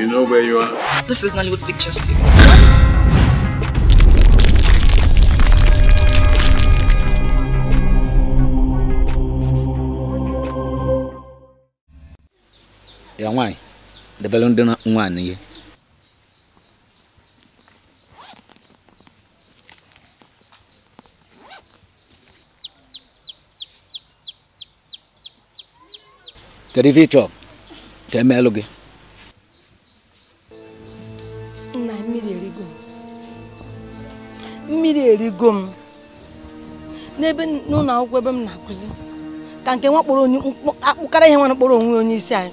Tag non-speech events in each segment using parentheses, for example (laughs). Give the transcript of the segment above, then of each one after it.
You know where you are? This is Nollywood Pictures TV. Ya nwanyị, debere ndị nwaanyị ihe. Kedu ife ị chọrọ ka emeelụ gị? erigo m n'ebe n'ụlọ akwụkwọ ebe m na-akụzi ka nke nwa kpọrọ akpụkara ihe nwana kpọrọ onwe onye isi anyị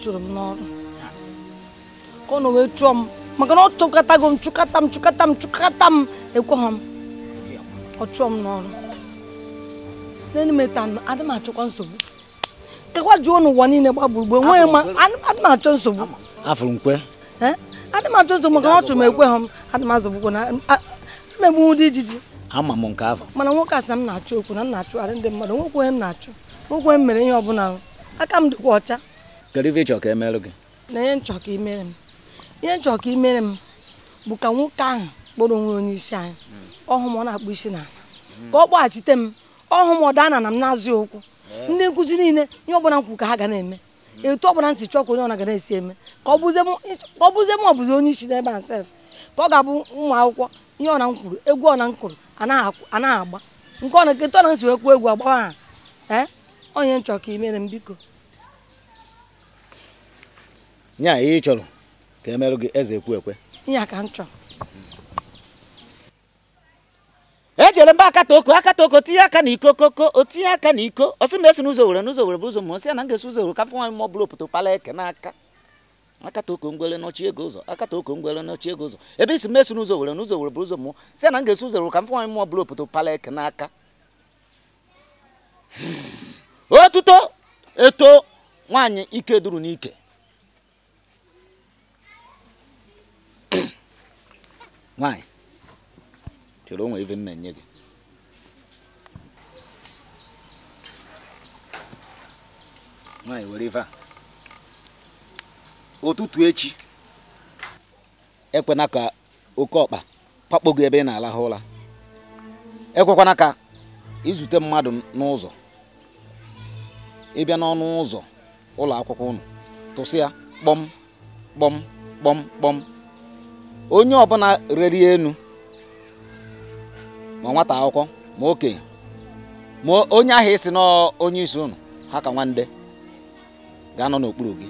chụrụ m n'ọrụ ka ọ na wee chụọ m maka na ọ tụkọtago m chụkata m chụkata m m ọ chụọ m n'ọrụ ọ chụrụ m mmegbu dị ijiji ama m nke ahụ mana nwoke a sị na m na-achụ okwu na m na-achụgharị ndị mmadụ onye m na-achụ nwokwe m mere ihe ọbụla aka m dịkwa ọcha kedu ife ịchọ ka e gị na ihe nchọ ka imere m ihe nchọ ka imere m bụ ka nwoke ahụ kpọrọ onwe onye isi anyị hmm. ọhụ m ọ na-akpụ isi na ka ọ kpọghachite m ọhụ m ọ daa na m na-azụ okwu hmm. ndị nkụzi niile ihe ọbụla nkwu ka ha ga na-eme hmm. etu ọbụla nsị chọọ ka onye ga na-esi eme ka ọ bụzie m ọ bụzi onye isi n'ebe a sef ka ọ ga-abụ ụmụ akwụkwọ ihe ọna m kwuru egwu ọna m kwuru anaghị agba nke ọna nketa ọna m si wee kwuo egwu agbawa ha ee onye nchọ ka imere m biko nya ihe ị chọrọ ka emerụ gị eze ekwu ekwe nya ka m chọrọ ejere mba akata oko akata oko tinye aka n'iko koko o tinye aka n'iko ọsị m esi n'ụzọ were n'ụzọ were bụ ụzọ ma osi ya na m ga-esi ụzọ were ka fụ nwaanyị m ọ bụla opoto pala eke n'aka akata oko ngwere n'ọchị ego ụzọ akata oko ngwere n'ọchị ego ụzọ ebe isi meso n'ụzọ were n'ụzọ were bụrụ ụzọ mụọ si na m ga-eso ụzọ were ka m mmụọ mụọ bụrụ opoto palek n'aka hmm. otuto eto nwaanyị ike duru n'ike hmm. chere onwe enye gị were a ụtụtụ echi ekwena ka oke ọkpa pakpo ebe ị na-alahụ ụra ekwekwana ka izute mmadụ n'ụzọ ịbịa n'ọnụ ụzọ ụlọ akwụkwọ ụnụ, tụsị ya kpọm kpọm kpọm kpọm onye ọbụla reri enu ma nwata akwụkwọ ma okenye ma onye ahụ isi na onye isi ụnụ ha ka nwande ga-anọ n'okpuru gị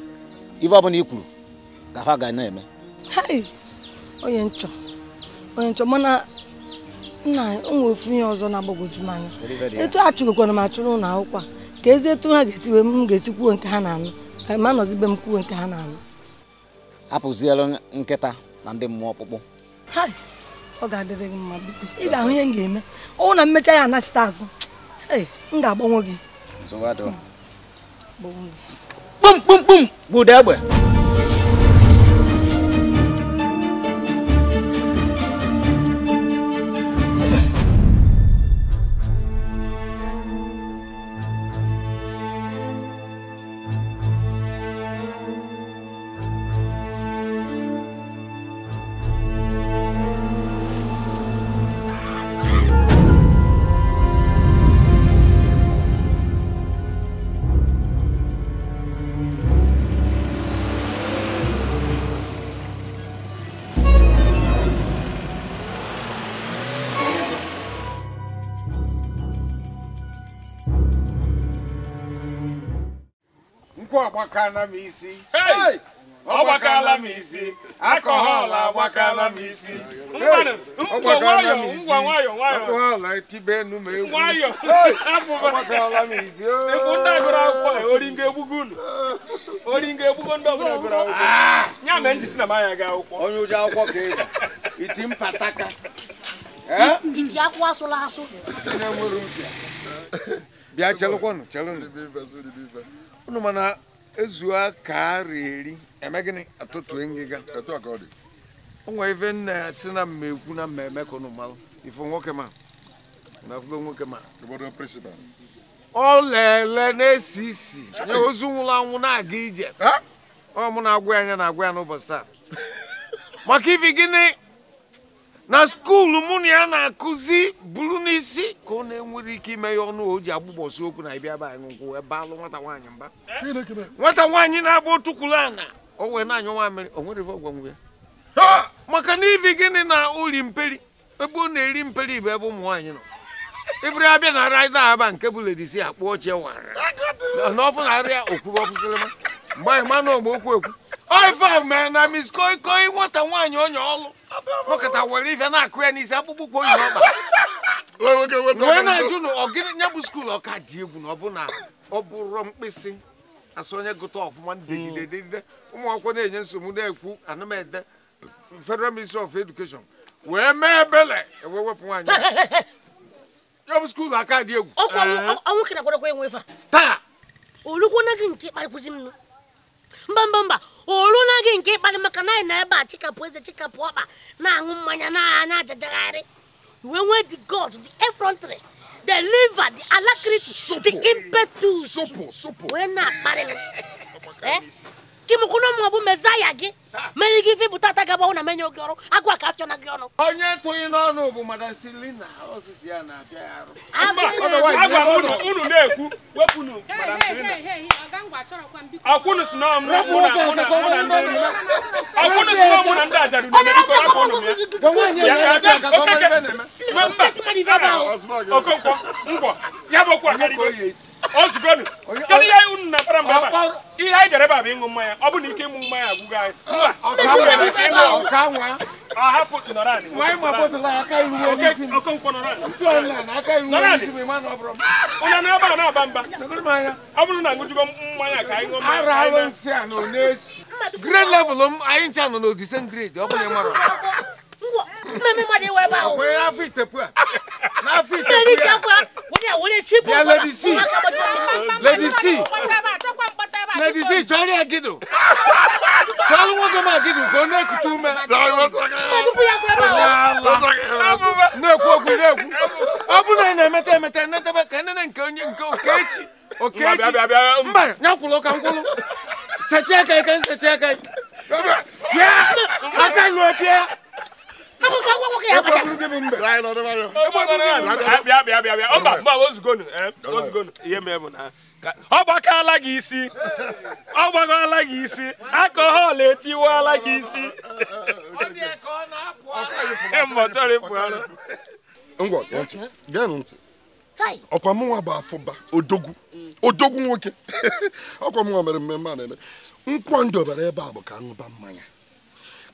ife ọbụla i kwuru ka ha ga na-eme onye nchọ onye nchọ mana nna nwe ofu ihe ọzọ na-agbagwoju m anya etu a chụgokwara m achụrụ ụlọ akwụkwọ ka ezi etu ha ga-esi wee m ga-esi kwuo nke ha na-anụ ma nọzibe m kwuo nke ha na-anụ hapụziela nkịta na ndị mmụọ ọkpụkpụ ọ ga-adịrị gị mma biko ị ga-ahụ ihe m ga-eme ọnwụ na mmecha ya anachite azụ m ga-agbanwe gị pum pum pum guda ba agbakala m isi ọgbakala m isi akọhọl agbakala m isi ọgbakala m isi akọhọl etibe enu ma egwu ọgbakala m isi ya ga akwụkwọ onye ụjọ akwụkwọ ka e iti mpataka eh? bịa chelụkwanụ chelụnụ mana ezuo ka ara eri eme gịnị atụtụ ngịga onwe ife nna si na mmekwu na mmemme ka ụnụ malụ nwoke ma na afụbe nwoke ma ọ lele na-esi isi nye ozu nwụrụ anwụ na-aga ije ọ mụ na-agwa ya anya na-agwa ya n'ụbọchị taa maka ife gịnị na skuulu mụ na ya na-akụzi buru n'isi ka ọ na-enwere ike ime ya ọnụ o ji agbụgbọsi okwu na ịbịa be anyị nkwụ ebe alụ nwata nwaanyị mba nwata nwaanyị na-agba otukwuru ana o wee na-anyụ nwa mmiri o nwere ọgwangwe ya maka na ivi gịnị na uri mperi ebe ọ na-eri mperi bụ ebe ụmụ nwaanyị nọ ifere abịa na raịda aba nke bụ ledisi akpụ ochie wara n'ọfụ na arịa okwuru ọfụsịrịma mgbe anyị ma na ogbe okwu ekwu oife mee na miskoi nwata nwaanyị onye ọlụ nọkọta were ife na-akụ ya n'isi akpụkpọ ụkwụ oyi ọkpa wee na-ajụ na ọgịnị nya bụ skuul ọka dị egwu na ọ bụ na ọ bụrụ mkpịsị asụ onye gụta ọfụma dedide dedide ụmụ akwụkwọ na-enye nsogbu na-ekwu anamede federal ministry of education wee mee ebele wee wepụ nwaanyị ya bụ skuul aka dị egwu taa olugwo na gị nke kparịkwụzi m mba mba mba na gị nke ịkparị maka na anyị na ebe a chikapụ eze chikapụ ọkpa na-aṅụ mmanya na na-ajajagharị wee nwee the god the effrontery the liver the alacrity the impetus wee na-akparị (laughs) m gị mụkwụna ụmụ ọbụ mezaya gị mere gị ife bụta ata gaba na menye oge ọrụ agwa kachọ na gị ọnụ onye tụghị n'ọnụ bụ madam silina osisi ya na-abịa unu na-ekwu wepụnụ madam na ọmụ ndị ozugonu kedu ihe unu na-apara mgbe ihe anyị bịara ebe a bụ ịṅụ mmanya ọ bụ na ike ịṅụ mmanya agwụgo anyị ahapụ na-aba a na-aba mba ọ bụrụ na ṅụjugo mmanya ka anyị ṅụọ mmanya grade m anyị ncha nọ ọ mara mmemme de wɛba o. akɔyɛ n'afi tepua n'afi tepua. n'ani tepua o de o de tui pɔnkɔ la. lady c lady c lady c jɔnni agidu jɔnni wo dama agidu ko ne kutu mɛ. ne ko ogun ne kun aw bɛ na mɛtɛ mɛtɛ ne tɛ bɛ kɛ ne ne nke nke o kɛ ci o kɛ ci n bari n y'a kulo kan kolo sɛtiya ka ɲi ka n sɛtiya ka ɲi. ọ ala gị isi ọ ala gị isi akọhọl ala gị isi ọkwa mụnwa bụ afụba odogwu odogwu nwoke (laughs) ọkwa mụnwa mere mmemme a na-eme nkwọ ndobere ebe a bụ ka ṅụba mmanya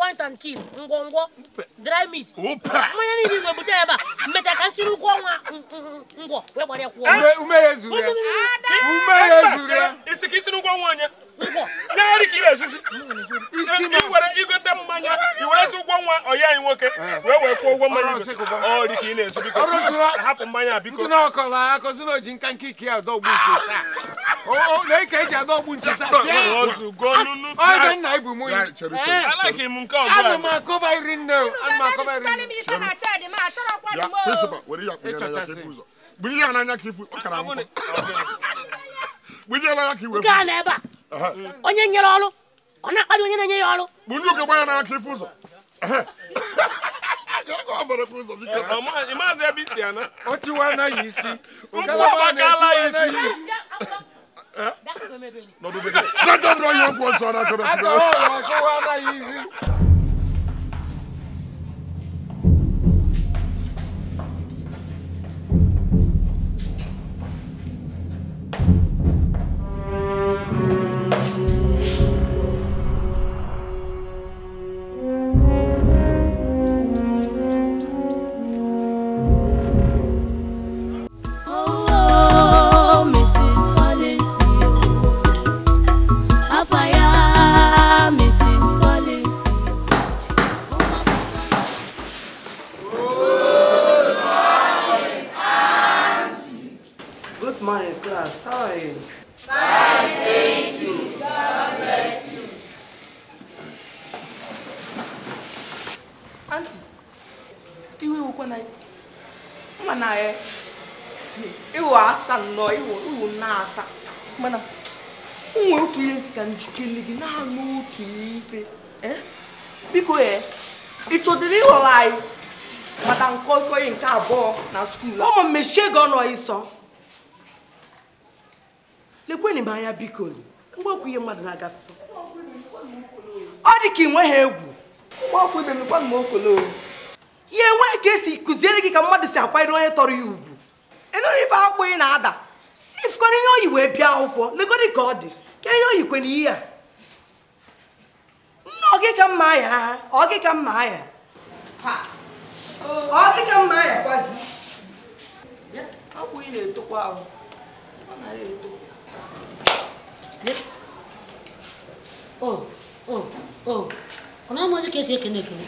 point and kill ngwongwo dry meat mmanya niile igwe bute ebe a mmecha ka nsiri ụkwụ ọnwa ngwọ wee gbara ya kwụọ ume ya zuru ya isi ka isi n'ụkwụ ọnwa onye naarị ka ị na-ezuzi iwere igote mmanya iwerezi ụgwọ nwa ọya anyị nwoke wee wee kwụọ ụgwọ mmanya ọ dị ka ị na-ezu biko hapụ mmanya biko ntụna ọkọla akọzi na oji nka nke ike ya adọgbu nche a na eji adọgbu nche saa ọzọ nna ibu ya ana m akọba iri Uh-huh. onye nyere ọrụ ọ na onye na-enye ya ọrụ bụ ndị oke gbanya n'aka ife ụzọ uh-huh. (laughs) ọ tiwa anaghị isi ngalaba na anaghị isi uh-huh. ọgwụ ọzọ na skuul ụmụ mmechie gị ọnụ ịsọ lekwenị m anya biko ngwa okwu ihe mmadụ na ọ dị ka ị ha egwu ya enweghị ka esi kụziere gị ka mmadụ si akwanyere onye tọrọ ya ugwu ịnụrụ ife akwụkwọ na-ada ifukọrọ ihe oyi wee bịa akwụkwọ legodi ka ọ dị ka kwe ihe a ya ya akwụ ị na-etokwa ahụ ọ na ya eto ọ na-amazi ka esi ekene ekene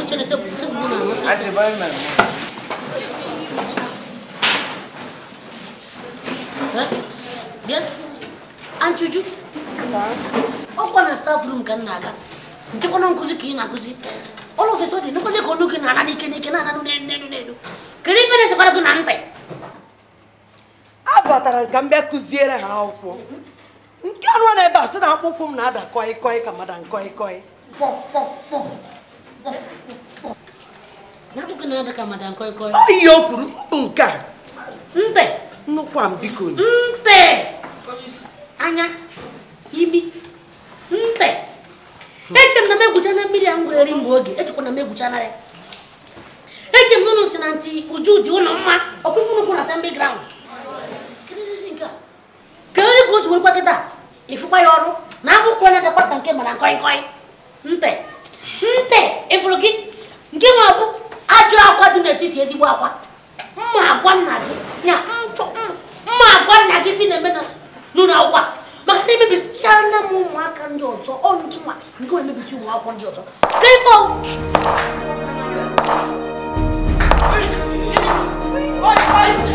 ụchere ọ na na staf rum ka m na-aga nchekwana nkụzi ka ị na-akụzi ọlụ ofesi ọ dị nkụzi ka ọnụ gị na-ana n'ike n'ike na-ana n'ike ife na-esekwara gị na ntị abatara ka m bịa kụziere ha akwụkwọ nke anụ na ebe a sị na akpụkpọ m na-ada kọi kọi ka mada nkọi kọi ihe o kwuru mbụ nke a ntị nnukwu a biko ntị anya imi ntị eche m na m egwucha na mmiri a m gwere eri mgbe oge echekwa na m egwucha na ya si na ntị uju dị ụlọ mma ọkụfụnukwu na asembli graund ka nri ka o si werukwa kịta ịfụkwa ya ọrụ na abụkwa onye dịkwa ka nke mara nkọị nkọị nte ịfụrụ gị nke nwe abụ ajọ akwa dị n'etiti ezigbo akwa mma agwa nna gị ya mma agwa nna gị na-eme n'ụlọ akwụkwọ maka na m ụmụaka ndị ọzọ ọ ndị nwa nke ndị ọzọ Bukulukulu,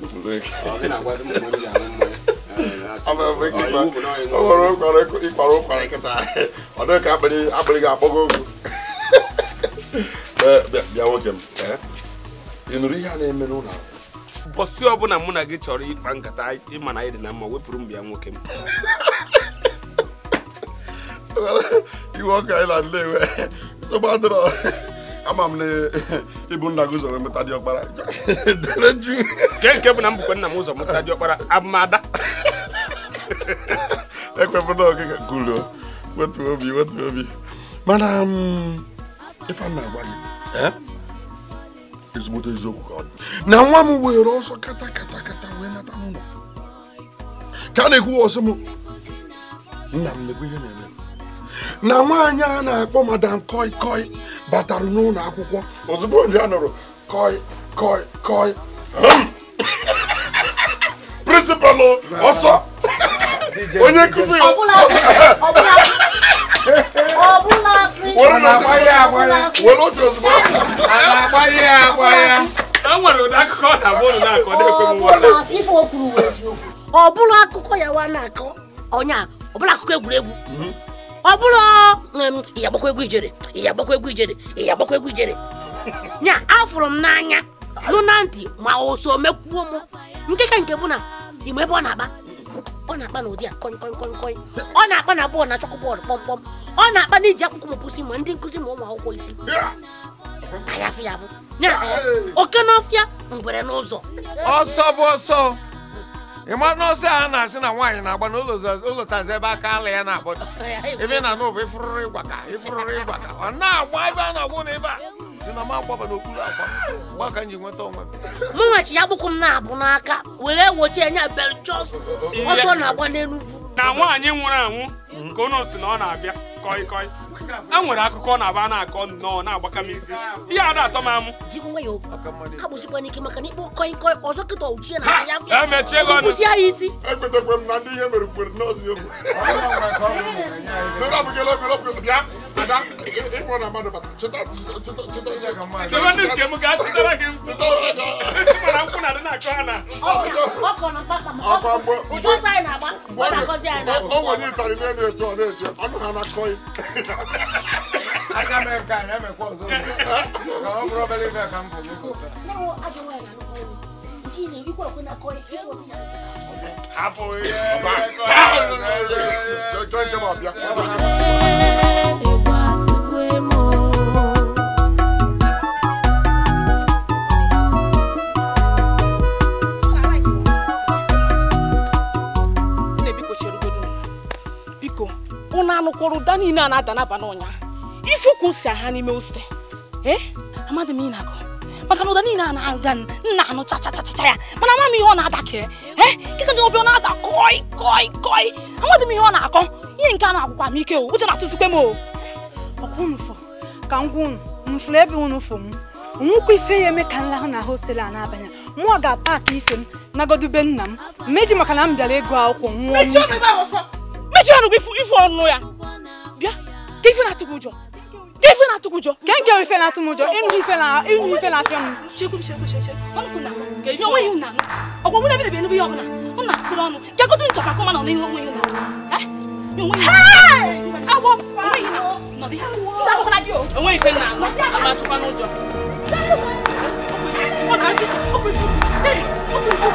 bukulukulu. Ọ dị na-agwa dị m mgbe m ji anụ mmanya. o ụkwara nkịta ọ dịghị nwoke m a na-eme n'ụlọ ọbụla mụ na gị chọrọ ịkpa nkata ịma na anyị na mma wepụrụ m bịa nwoke m (laughs) na ama m na ịbụ nna gị ụzọ mmụta dị ọkpara (laughs) nke bụ na nna m ụzọ dị ọkpara abụmada (laughs) ekwepụla ọgịga gụrụ wetu obi wetu obi mana um, ife m na-agwa gị eh? ezigbote eziokwu ka ọ dị na nwa m were ọsọ kata kata kata wee nata n'ụlọ ka a na-ekwu ọsọ m nna m na-ekwu ihe na-eme na nwaanyị a na-akpọ madam koi koi batara n'ụlọ akwụkwọ ozugbo nje a nụrụ koi koi koi (coughs) prịnsịpalụ ọsọ onye nkụzi (laughs) were otu ozugbo ọ bụrụ akụkọ ya wa na-akọ onye ọ bụrụ akụkọ egwuregwu mhm. ọ bụrụ ya gbakwa egwu ijere ya egwu ijere ya egwu ijere (laughs) nya afụrụ m n'anya nụ na ntị ma o mekwuo m nke nke bụ na ime ebe ọ na-agba ọ na-akpa n'ụdị a kọị kọị kọị kọị ọ na-akpa na bọọlụ na chọkụ bọọlụ kpọmkpọm ọ na-akpa na iji akwụkwọ mụpụsị ma ndị nkụzi ma ụmụ akwụkwọ isi ayafụ ya bụ oke n'ọfịa ngwere n'ụzọ ọsọ bụ ọsọ ịma na ọsọ a na-asị na nwaanyị na-agba n'ụlọtazi ebe aka ala ya na-agbado (laughs) ebe na n'ụba ịfụrụrụ ịgwa ka ịfụrụrụ ịgwa ka ọ na-agba ebe a na-agbụ na a si na m agbaba n'okpuru akwa mgbe ka m nweta onwe m nwachi ya gbụkwụ m na-abụ n'aka were wochi enye beljos ọsọ na-agba n'enugwu na nwaanyị nwụrụ anwụ ka unu si na ọ na-abịa kọị kọị e nwere akụkọ na-aba na-akọ nnọọ na-agbaka m isi ihe ada atọ m amụ agbụsịkwa n'ike maka na ikpo kọị kọị ọzọ kịta ochie na e ya emechie gị ọnụ ya isi ekwetakwa m na ndị ihe mere kwere n'ọzi okwu Ada, e mo na mado bata. Cheta, cheta, cheta, cheta. Cheta ni ke mu ka cheta ra ke mu. Mo na ku na de na ko ana. O ko na bata mo. Afa bo. O to sai na ba. O na ko sai na. O wo ni tari ne ne to ne je. O na na koi. Aga me ka ya me ko zo. Ka o probably na kam po ko sa. No, aga we na no. Kini ikwa ko na koi. Hapo ye. Ba. Join them up. bụ na anụkwọrọ ụda niile a na-ada n'abalị ụnyaahụ ife ụkwụ ha n'ime ose amadị m ịnakọ maka na ụda niile a na-aga nna anụ chachachacha ya mana ama m ihe ọ na-ada ka kịta ndị ọbịa ọ na-ada kọi kọi kọi amadị m ihe ọ na-akọ ihe nke a na-agwụkwa m ike o uche na-atụzikwe m o ọkwa unu fọ ka ngwa unu mfụrụ ebe unu fọ m nwụkwa ife ya eme ka nlahụ na hostelụ a na-abanye mụọ ga-apaki ife m nagodube nna m meji maka na m bịara ịgụ akwụkwọ nwụọ mechie ọnụ gị ifu ọnụ ya bịa ka ife na-atụ gị ụjọ ka ife na-atụ gị ụjọ ka nke ife na-atụ m ụjọ ịnụ ife na ịnụ ife na-afịa m onweghị ụna ọgwụ mụ na ebidebi enebe ihe ọbụla m na-atụkpụrụ ọnụ ka gotu nchọ ka kọma nọ n'ihu onweghị ụna enweghị ife na ama atụkwa n'ụjọ ọ na-asị ọkụ ọkụ ọkụ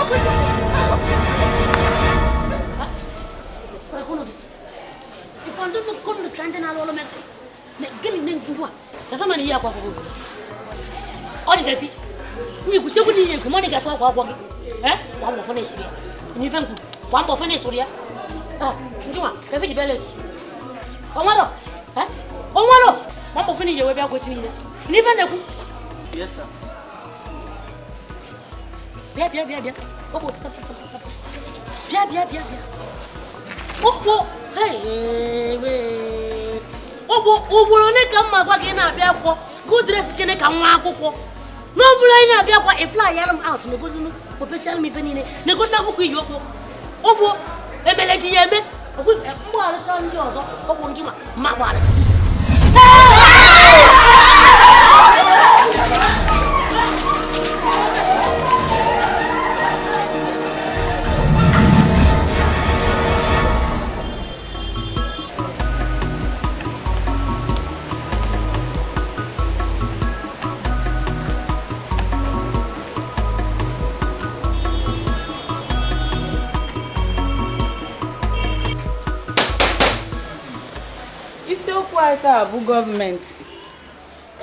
ọkụ ọkụ on doesn't understand all of us. Gini nini kujua? Tazama ni yako hapo. Odi tati. Ni kusiku ni yangu mwana gaswa kwa kwa. Eh? Wa mfanye suria. Ni fangu. Wa mfanye suria. Ah, kujua. Kafi dibeleji. Omaro. Eh? Omaro. Wa mfanye yewe bya kwa chini. Ni fanye ku. Yes sir. Bia bia bia bia. Obo tap tap tap. Bia bia Oh, oh. ugboro ole ka mma gwa gị na-abịa akwụkwọ gudres kene ka nwa akwụkwọ n'ọbụrụ anyị na-abịa akwa ifly yara m out na opechara m ife niile na-egota akwụkwọ iyi okwu ụgbọ gị ya eme eh, ndị ọzọ ọgwụ ndị ma gbarị ite a bụ gọọmenti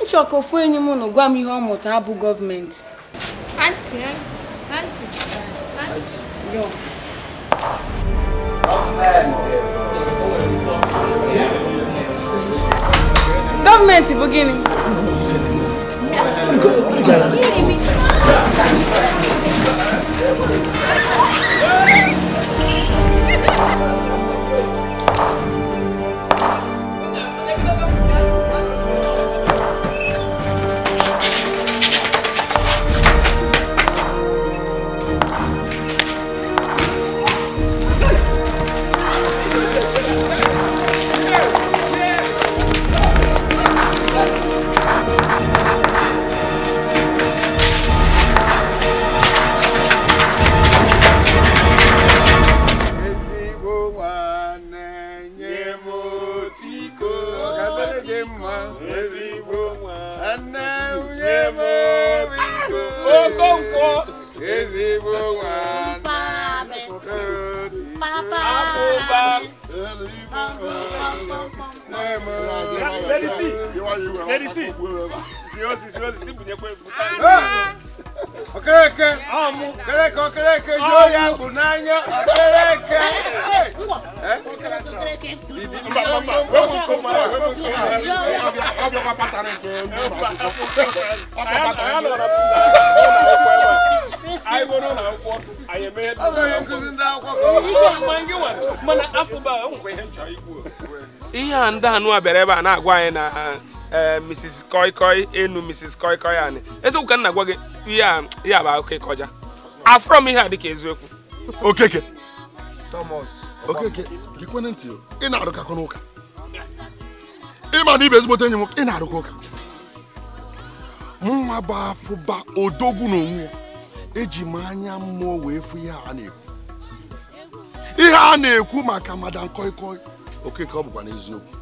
nchọka ofu enyi m nụ gwa m ihe ọ mụta abụ gọọmenti yo gọọmenti bụ gịnị ha ndị ha nụwa bịara ebe a na-agwa anyị na eh, eh, mrs koikoi enu mrs koikoi anyị eziokwu ka m na-agwa gị ihe a bụ akụkọ ịkọja afọ m ihe a dịka eziokwu okeke thomas okeke gịkwene ntị ị na-arụkakọ n'ụka ịma na ibe ezigbote enyi m ị na-arụkọ ụka nwa bụ afụba odogwu onwe ya eji m anya mmụọ wee fụ ihe a na-ekwu ihe a na-ekwu maka madam koikoi Okeke ọ bụkwa n'eziokwu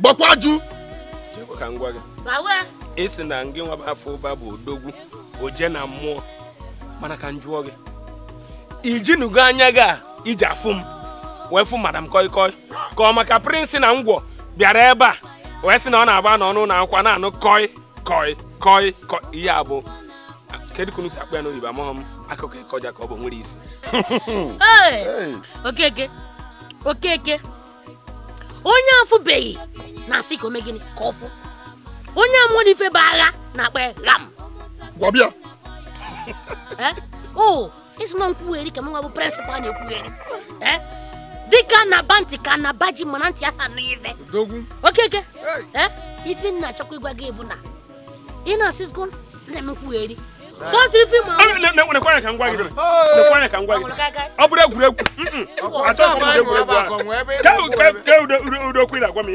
gbakwa jụ ka na ngị nwaba afọ ụba bụ odogwu oje na mmụọ mana ka m jụọ gị ijinugo anya gị a iji afụ m wee fụ madam koi koi ka ọ maka prịnsị na ngwọ bịara ebe a wee sị na ọ na-agba n'ọnụ na akwa na-anụ koi koi koi koi ihe a kedu kunu si akpọ ya n'oyibo amụghị m akụkọ ịkọja ka ọ bụ nwere isi okeke okeke onye afụbeghị na-asị ka omegịnị ka ọfụ onye amụrụ ife bụ agha na-akpa ram gwabịa (laughs) eh? o oh, isi na nkwugheri ka mụnwa bụ prịnsịpal na-ekwugheri eh? dịka na bantị ka na baji mana ntị aha nụ ife okeke eh? ife nna achọkwa ịgwa gị ebu na ị na-asị na-eme nkwugheri nekwa ya ka ngwa gị nekwa ọ bụrụ egwuregwu mm, mm. m na-agwa m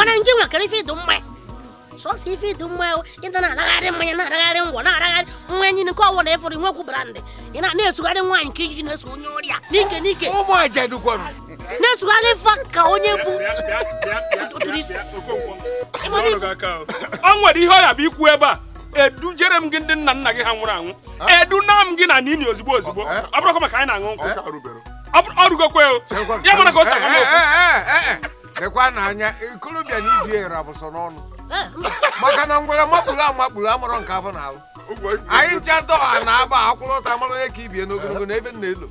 a a nkwụ na m sọsọ ife ịdị mma ịta na laghari mmanya na-adagharị ngwọ na-adagharị mmanya niile nke ọwụna ịfụrụ nwekwu brandị ị na-esugharị nwaanyị nke iji na-eso onye ọrịa n'ike n'ike na-esugharị fa ka onye bụ e o nwere ihe bụ ikwu ebe a edujere m gị ndị nna nna gị ha nwụrụ anwụ ah. eduna m gị na nini ozugbo ozugbo eh, eh. ọ bụrụkwa maka anyị na-aṅụ eh, ọ ya mara ka o si aga n'okwu ikolobịa na bụ sọ n'ọnụ maka na ngwere makpuru amakpuru amụrụ nke afọ na-alụ anyị ncha dọha na aba akwụlọta amarụ onye ka ibie n'ogologo na ebe nna elo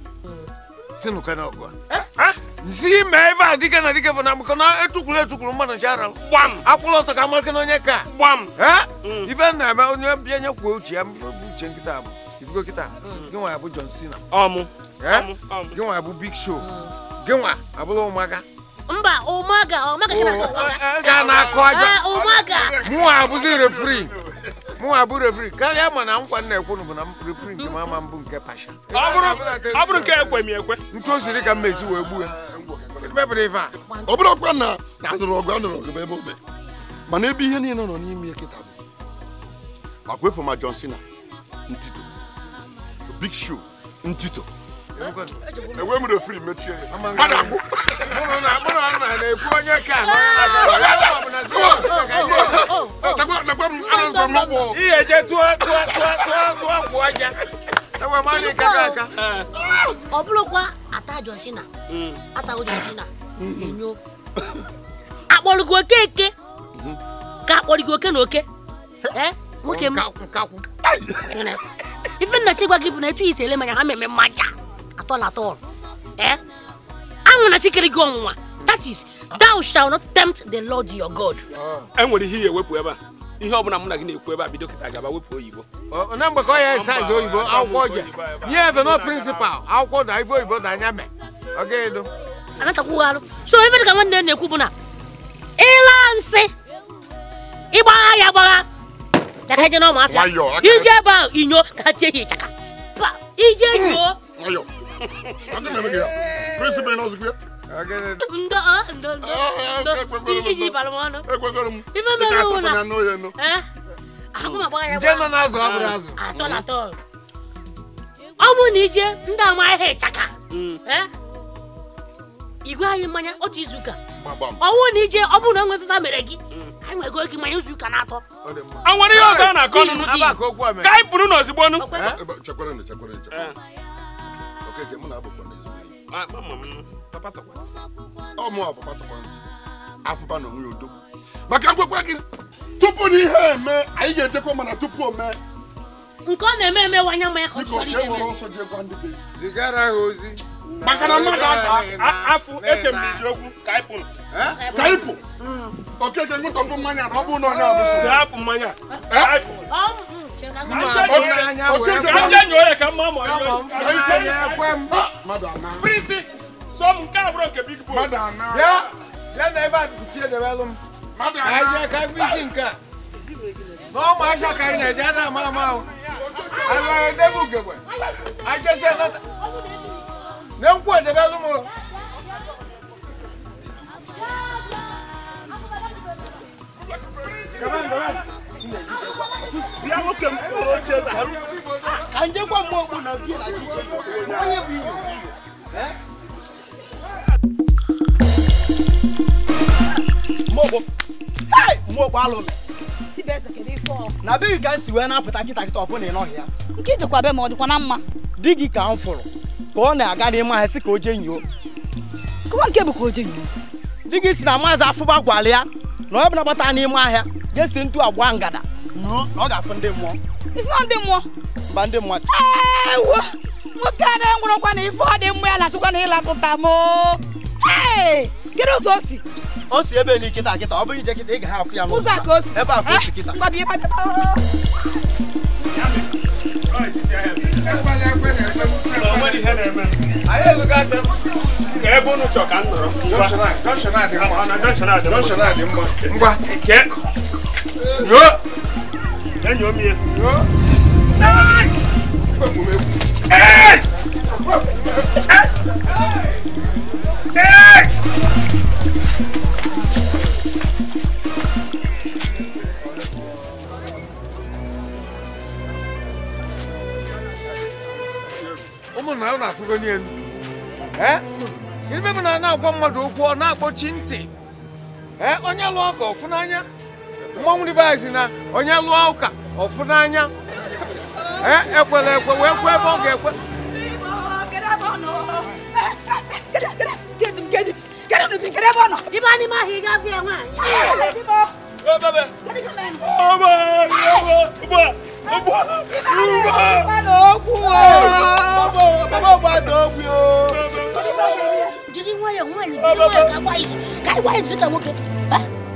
nsi ime ebe a dike na dike bụ na maka na etukwuru etukwuru mmadụ ncha ara akwụla ọtọ ka amalike na onye ka mm. ife na-eme onye bịa nye kwuo uche ya bụ uche nkịta bụ ifugo kịta mm. gị nwa ya bụ John Cena gị nwa ya bụ Big Show gị nwa abụla ụmụaka mba ụmaga ụmaga ga na-akụ aja ah, ụmaga mụwa abụzi refri mụwa abụ refri karịa ma na nkwa na-ekwu bụ na refri nke mama mbụ nke pasha ọ bụrụ nke ekwe m ekwe ntu o siri ka mmezi wee gbuo ọ bụrụ ọkwa na anụrụ ọgụ anụrụ ọgụ ebe obe mana ebe ihe niile nọ n'ime ya kịta bụ agwa efu ma John Cena ntito Big Show ntito enwe m refri mechie ihe je tụọ gwụ aja ọ bụrụkwa ata jọsina atago na enyo akpọrọgo oke ka akpọrọgo oke na oke nwoke m ife nnachi gwa gị na etu i manya ha meme mmaja at all at all. Eh? I want to chicken go That is, thou shalt not tempt the Lord your God. And when he wepụ ebe a. ihe ọbụla mụ na gị na-ekwu ebe a bido kịta gaba wepụ oyibo na mgbe ka ọ ya saiz oyibo akwụkwọ je nye efe no prịnsịpal akwụkwọ da ife oyibo da anya me ọgaedo anachakwughalụ so ife dị ka nwanne na-ekwu bụ na ịla nsị ịgbagha ya gbagha ka ha je n'ọmụ afịa ije ebe ahụ inyo ka ha tie ya ịchaka ije nyoo Ang ganda kaya. Prince Benoz kaya. Nda ah nda nda. Gigi palomano. Ima melo na. Ano yan no? Eh? é mabaya. Jema nazo abrazo. Atol atol. Awo ni je nda ma he chaka. Mm. Eh? Igwe anyị mmanya otu izu ụka. Ọwụ na ije ọ bụrụ na que mere gị. na nwere ihe ọzọ ọ na-akọ nụ n'ụdị. Ka anyị pụrụ n'ozigbo nụ. okeke mụ na abụkwa na ezigbo enyi ọ mụ afọ patakwa ntị afụba na onwe ya odogwu maka ngwekwa gị tupu na ihe eme anyị ga-ejekwa mana tupu o mee nke ọ na-eme emewanye ma ya ka ọ chọrọ ihe mere ọsọ jee gwa ndị be zigara ha ozi maka na mmadụ afọ eche m iji okwu kaịpụ kaịpụ mm. okeke ngụtọpụ mmanya na ọ bụrụ na onye abụsụ hapụ mmanya kanja nyɔɔyɛ ka big boy. Come on, come on. bịa nwoke m kpụrụ ka njekwa na na chiche onye bụ iyo na be ka m si wee na-apụta ọ ị nọghị ya nke ijekwa be ma ọ dịkwa na mma di gị ka m fụrụ ka ọ na-aga n'ime ahịa sị ka o kụwa si na maazị afụba ya na ọ bụ na n'ime ahịa jee si ntu agba ngada ọ ga-afụ ndị mmụọ ndị mmụọ mba ndị mmụọ ewo nwoke a na-enwụrọkwa na ife ọ dị mmụọ ya na-achụkwa na ịlapụta m kedu ụzọ o si o si ebe ni kịta ọ bụrụ ije kịta ị ga ya n'ụzọ ka o si ebe a ka kịta ebe unu chọ Yo! na ụlọ mmadụ okwu ọ na-akpọchi ntị. Onye lụọ ọgọ ọfụ mmọnwụ na onye lụọ ụka ọfụ n'anya ekwela ekwe wee kwe ebe ọ ga-ekwe ịba n'ime ahụ ị gafe ya nwaanyị jiri nwayọọ nwanyị jiri nwayọọ ka ị gwa izu ka nwoke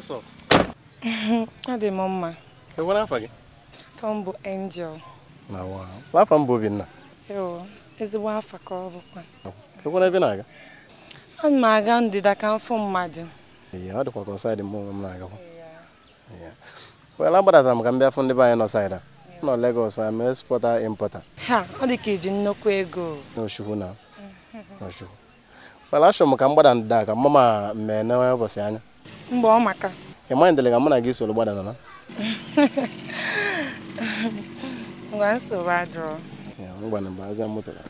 what's (laughs) Ọ dị m mma. E afọ m Angel. Na m bụ Obinna. ezigbo afọ ka ọ bụkwa. Ekwu na-aga? Ana m aga ndịda ka mfụ mmadụ. ọ dịkwa ka dị onwe m na m ka m bịa fụ ndị be anyị nọ saịda. nọ Lagos am exporter ọ dị ka iji nnukwu ego. N'Ochukwu na. N'Ochukwu. Well, achọrọ m ka m gbada ndịda ka mmemme ụbọchị anya. mgbe ọ maka ị maghị ndele ka mụ na gị soro gbada nana ngwa nsogbu adụrụ ngwa na mba azịa mụtara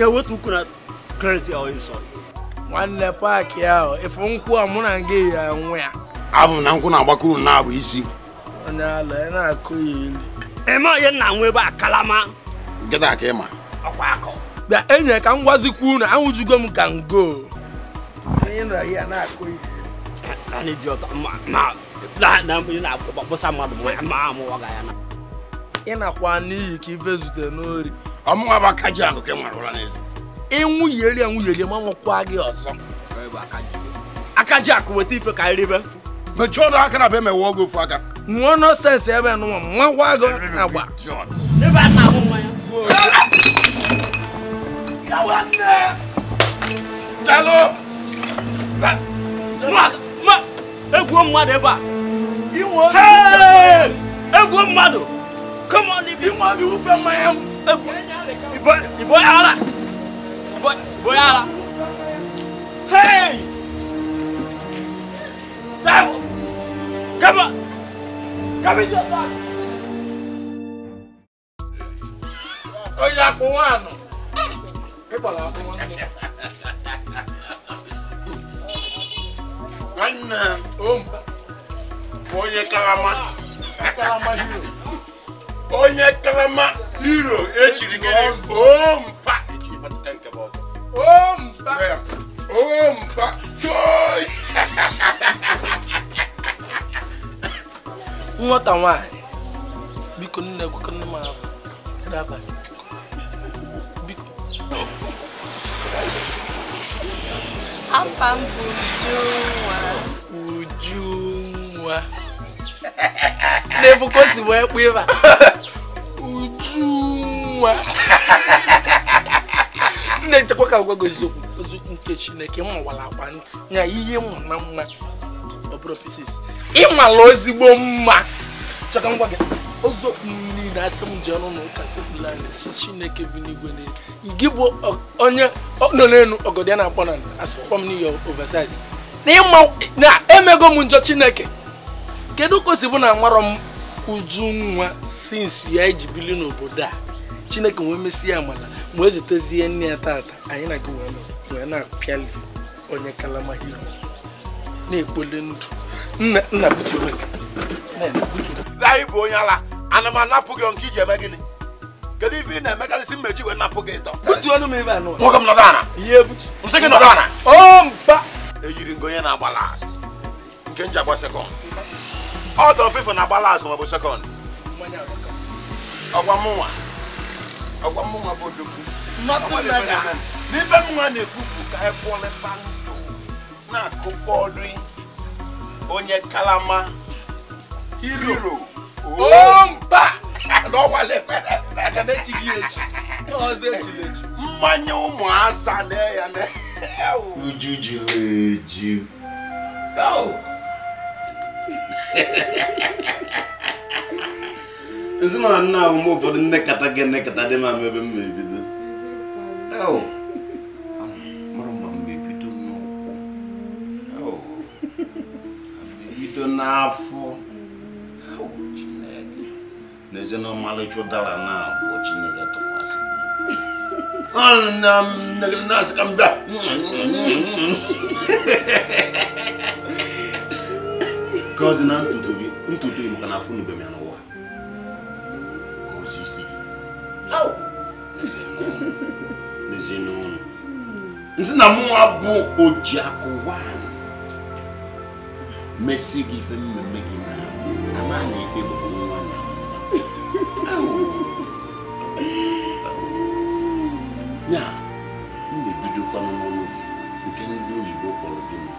na-ewetu ukwu na kredit ya nsọ nwanne paakị ahụ efu nkwụ a mụ na gị ya nwe ya abụ na nkwụ na-agbakuru na abụ isi onye ala ya na-akụ ya ilu eme onye nna nwe ebe a kalama nkịta ka ịma ọkwa akọ bịa enyi ka m gwazikwu na ahụjugo m ka ngo onye nọ ya na-akụ ya anyị dị ọtọ ma na-akpọsa mmadụ ma amụwaga ya na ị nakwa n'iyi ka ife zute n'ori ọmụ abakaji akụkọ nwarụla n'ezi ịnwụ yeri enwụ yeri ma nwụkwa gị ọzọ akaji akụ weta ife ka iribe mechie ọdụ aka na be mewe oge ofu aka nwụọ nọsensị ebe nụwa mmanwa gị agba Egwuo mmadụ ebe a! Egwuo mmadụ! Come on, leave you. You want to be Ìbọn ìbọn ara. Ìbọn ìbọn ara. Hey! Sáàmù! Kẹ́mọ̀! Kẹ́mi jẹ́ sáà. Ó yá kó wá àná. Pípọ̀ làwọn fún wọn. Wannan, ó ń bá. Wọ́n yẹ karama. Karama yìí o. onye karama hiro echiri gị ompa echiri pụta nke bụ ọzọ ompa ya. ompa choi (laughs) nwata nwanyị biko nne gwakọ nne m ahụ abalị biko afa m bụ Ujunwa Ujunwa na n'ebuko si wee kpụ ịba nwa. na-echekwa ka gwago eziokwu ozu nke chineke mawara akwa ntị ya ihe mma na mma ọ bụrụ pisis ịmala ozigbo mma chọka ngwa gị eziokwu niile asị m ji ọnụ na ụka sipụla si chineke bi n'igwe n'elu gị bụ onye nọ n'elu ọgọdị a na-akpọ na asịkpọ m n'iyi oversize na emego m njọ chineke kedu ka o si bụ na nwarọ m uju nwa sinsi ya iji bili n'obodo a chineke wee mesịa amala ma ezitezie nne ya tata anyị na gị wee na-apịali onye kalama hiro na-ekpoli ndụ nna butere anyị bụ onye ala ana m anapụ gị nke iji eme gịnị kedu ife ị na-emekarịsị mmechi wee napụ gị ịtọ butuonu m ebe anụ nwoke m nọdụ ana ihe ebutu nsị gị nọdụ ana o mba eyiri ngo onye na-agba last nke nji agba sekọnd ọdọ fífọ na agbala azụ maọbụ sekọnd ọgwa mụnwa ọgwa mụnwa bụ odogwu n'ibe mụnwa na-ekwu bụ ka anyị kwụọlepa ndụ na-akụkọ ọdụ onye kalama hero (laughs) No, omba mmanya ụmụaza na ya na ujuju Oh. (laughs) ezinụlọ nna ahụ mgbe ụfọdụ nnekata gị nnekata kata dị ma ebe m ma ebido mara ma m ebido n'ụkwụ ebido n'afọ na eze na ọmalịcha ụdara na abụọ chineke tụkwasị na-asị ka m bịa nke na ntutu gị ntutu gị maka na afụ nube m ya n'ụwa ka ozi isi gị n'ezinụlọ nsị na mụnwa bụ oji akụ nwaanyị mesi gị ife mmemme gị na ama ife bụ nwa ya m na-ebidokwa n'ọnụ gị nke ndị oyibo kpọrọ gị mma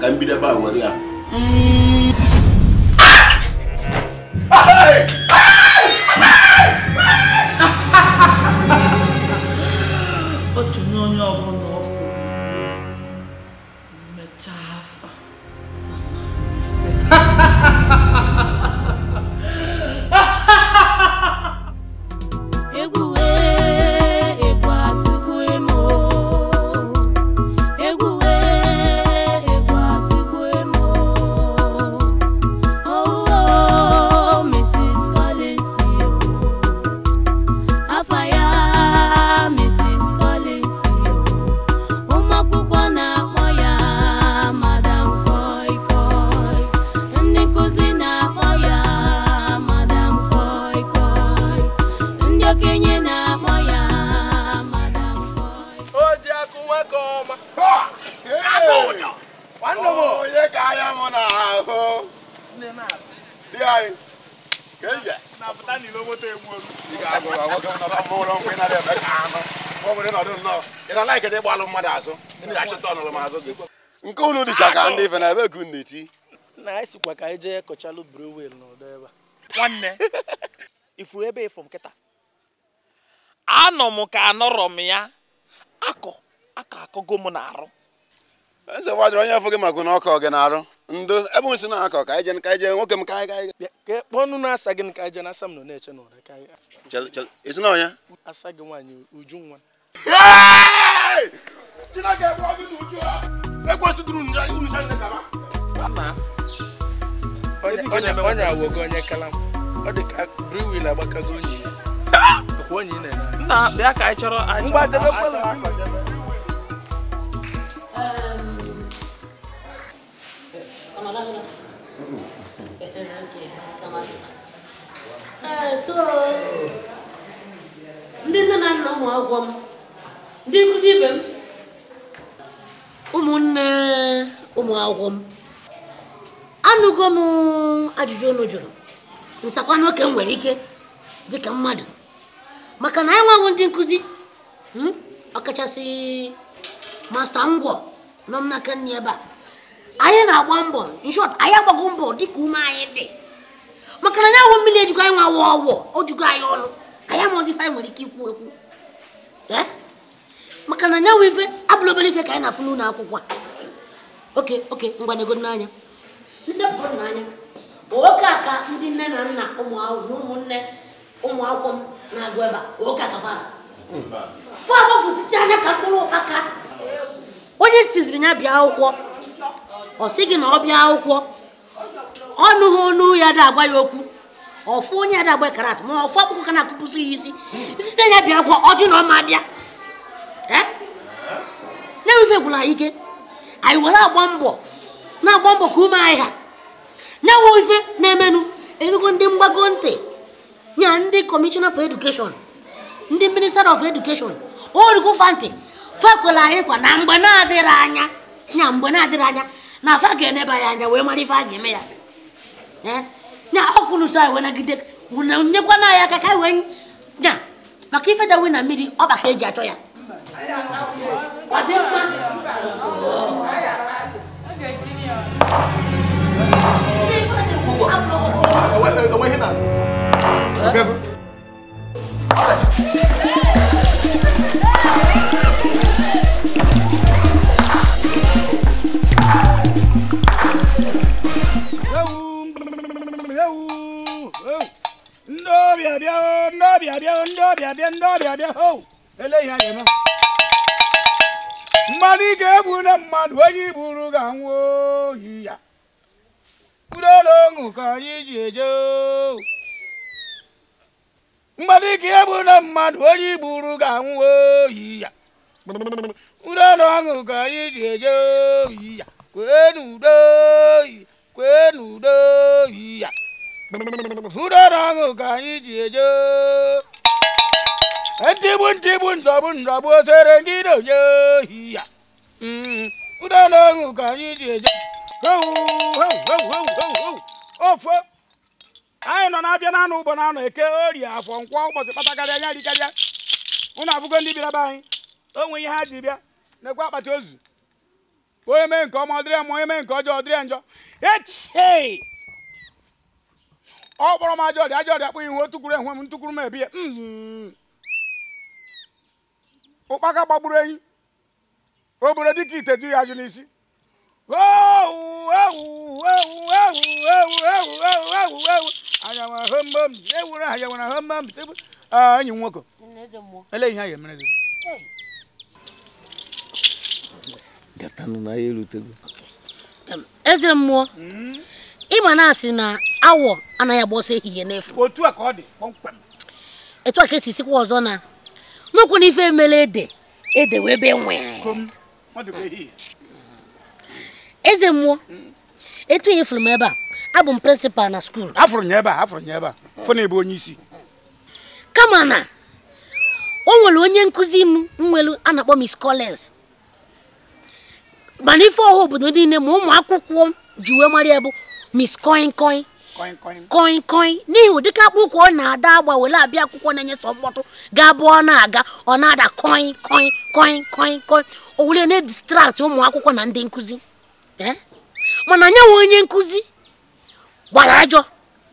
ka m bido ebe ya mm. ọcha (laughs) ka ndị ife na ebe e ka unu e na-eti ka anyị jee kọchalụ brewel n'ọdọ ebe a nwanne ifuru ebe ịfụ m anọ m ka anọrọ m ya akọ akọ akọgo m na-arụ eze gbajiri onye afọ gị maka na ọkọ gị na-arụ ndo ebe m si na-akọ ka anyị ka anyị nwoke m ka anyị ka kpọọ ọnụ na-asa gị ka anyị jee na-asa m nọ na-eche n'ụra ka anyị ezinọnya asa gị nwaanyị uju nwa Chineke bụ ọgụ na uju ha ekwentị onye awogo onye kala ọ dị ka briwil agbakago onye isi onye ị na-ene nna ka anyị chọrọ so ndị nne na nna ụmụ m ndị ụmụnne ụmụ akwụkwọ m anụgo m ajụjụ unu jụrụ nsakwa n'oke m nwere ike dịka mmadụ maka na anyị nweghị ndị nkụzi hmm, ọkachasị masta ngwọ nọ m n'aka nri ebe a anyị na-agba mbọ nshọt anyị agbago mbọ dịka ume anyị dị maka na anyanwụ mmiri ejigo anyị nwa ọgwọ ọgwọ o jugo anyị ọnụ anyị amaghịzi ife anyị nwere ike ikwu ekwu maka na nyanwụ ife abụla obere ife ka anyị na-afụ n'ụlọ akwụkwọ a oke oke ngwa nego n'anya ndepụta n'anya bụ oke a ka ndị nne na nna ụmụ akwụkwọ ụmụnne ụmụ akwụkwọ m na-agụ ebe a oke akabara fọ agbafusicha anya ka mkpụrụ aka onye siziri ya bịa akwụkwọ ọ sị gị na ọ bịa akwụkwọ ọnụ ha ọnụ ya da agwa ya okwu ọfụ onye ya da agba karat ma ọfụ akpụkọ ka na-akụpụsị ya isi site ya bịa akwụkwọ ọjụ na ọma bịa na-ewefegwula eh? anyị ike anyị were agba mbọ na-agba mbọ ka ume anyị ha nyewe ife na-emenụ erugo ndị mgbago ntị nye ndị kọmishọna for edukeshọn ndị minista of edukeshọn orugo fantị fakwela anyị kwa na mgbe na-adịrị anya nya mgbe na-adịrị anya na afa ga-eneba ya anya wee mara ife a ga-eme ya eh? nya ọkụlụso anyị wee nagide nyekwana anyị aka ka anyị wee nya maka ife dawe na mmiri ọ baka eji achọ ya bịa bịa ho eléyìí ayẹ mọ. mmadụ ị ga-egbu na mmadụ onye iburu ga oyi ya ka anyị ga na mmadụ onye iburu ga ya udola ọṅụ ka ya kwee kwee n'udo oyi ya ka anyị ji eje ntịgbu ntịgbu nzọgbu nzọgbu osere ndị na-onye ohi ya ụda na ọṅụ ka anyị ji eje ofe anyị nọ na-abịa na ụgbọ ụbọ na anụ eke ori afọ nkwọ ụbọchị kpatakarịa anya rikarịa ụnụ abụgo ndị bịara be anyị o ihe ha ji bịa nekwa akpati ozu onye mee nke ọma ọdịrị ma onye mee nke ọjọọ ọdịrị njọ etie ọ kpọrọ m ajọ ọrịa ajọ ọrịa kpụ ihu o tukwuru enwe m ntukwuru m ebie mm-hmm. ụkpaka gbagburu enyi o buru dịka ite ju ya ajụ n'isi enyi nwoke ele ihe a emere gị eze mmụọ hmm? ịma na-asị na awọ anaghị agba ọsọ ehihie n'efu otu a ka ọ dị kpọmkwem etu a ka esi sikwa ọzọ na n'okwu n'ife emele ede ede wee ebe nwee eze mmụọ etu ihe fụrụ m ebe a abụ m prịnsịpal na skuul afụrụ nye ebe afụrụ nye ebe a ebe onye isi kama na o nwere onye nkụzi m nwelu a na-akpọ Miss Collins mana ife ọha obodo niile ma ụmụ akwụkwọ m ji wee Miss Koinkoin koi koi n'ihi ụdịka akpụkwọ ọ na-ada agba were abịa akwụkwọ na-enye sọ mkpọtụ gaa ọ na-aga ọ na-ada koi koi koi koi koi o were na-edistrakt ụmụ akwụkwọ na ndị nkụzi eh? mana nye nwe onye nkụzi gbara ajọ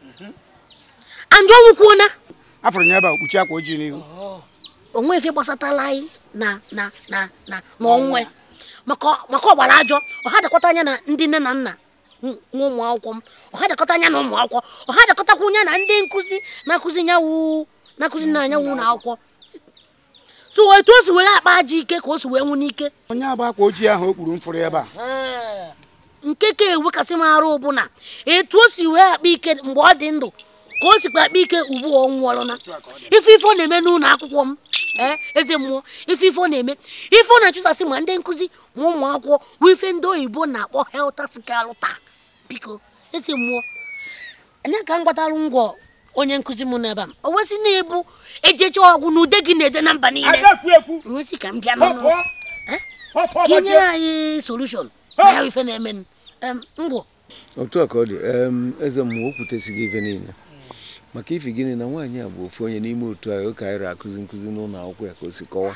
mhm. ọnwụ kwuona afọrọ akwa ojii n'ihu onwe efe gbasatala anyị na na na na n'onwe maka ọgbara ajọ ọ ha dakwata anya na ndị nne na nna nwa ụmụ akwụkwọ m ọha dịkọta anya na ụmụ akwụkwọ ọha dịkọtakwa onye na ndị nkụzi na-akụzi nyanwụ na-akụzi na anyanwụ na akwụkwọ so etu o si were akpa aja ike ka o si wee nwụ n'ike onye agba akwa ojii ahụ o kpuru mfụrụ ebe a nke ka ewekasị m arụ bụ na etu o si wee akpa ike mgbe ọ dị ndụ ka o sikwa akpa ike ugbu ọ nwụọlụna ife ife ọ na-eme n'ụlọ akwụkwọ m eze mmụọ ife ife ọ na-eme ife ọ na-achụsasị ma ndị nkụzi ma ụmụ akwụkwọ bụ ife ndị oyibo na-akpọ helta sikalụta biko esi mmụọ anya ka m gbatalụ ngwọ onye nkụzi m n'ebe m o wesị na-ebu ejecha ọgwụ na ude gị na-ede na mba niile nwesị ka m bịa n'ụlọ ka e anyị solushon na ya ife na-eme ngwọ otu a ka ọ dị eze mmụọ o kwutesighị ife niile maka ife gịnị na nwaanyị a bụ ofu onye n'ime otu anyị ụka anyị akụzi nkụzi n'ụlọ akwụkwọ ya ka o si kọwa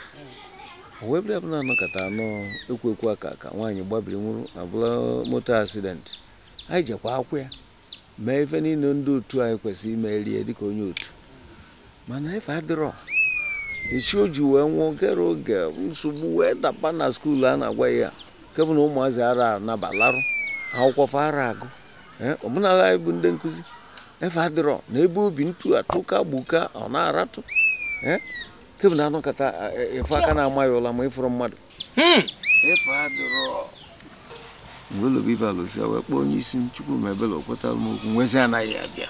o webụla bụla anọkọta anọ ekwu ekwu aka ka nwaanyị gbabiri nwụrụ abụla moto asidenti anyị jekwa akwụ ya mee ife niile ndị otu anyị kwesịrị ime rie dịka onye otu mana ife adịrọ echi o ji wee nwụọ kere oge nsogbu wee dapa na skuulu a na-agwa ya kebụ na ụmụazị ara nabalarụ akwụkwọ fa ara agụ ọbụnala anyị bụ ndị nkụzi efe adịrọ na ebe obi ntu atụka gbuka ọ na-aratụ kebụ na anụkata e, e, ife aka na-ama ya ụla ma ịfụrụ mmadụ hmm. ife adịrọ Olubibalụsị wee kpọọ onye isi Chukwu ma ebele kwetara m okwu nwezi anaghị abịa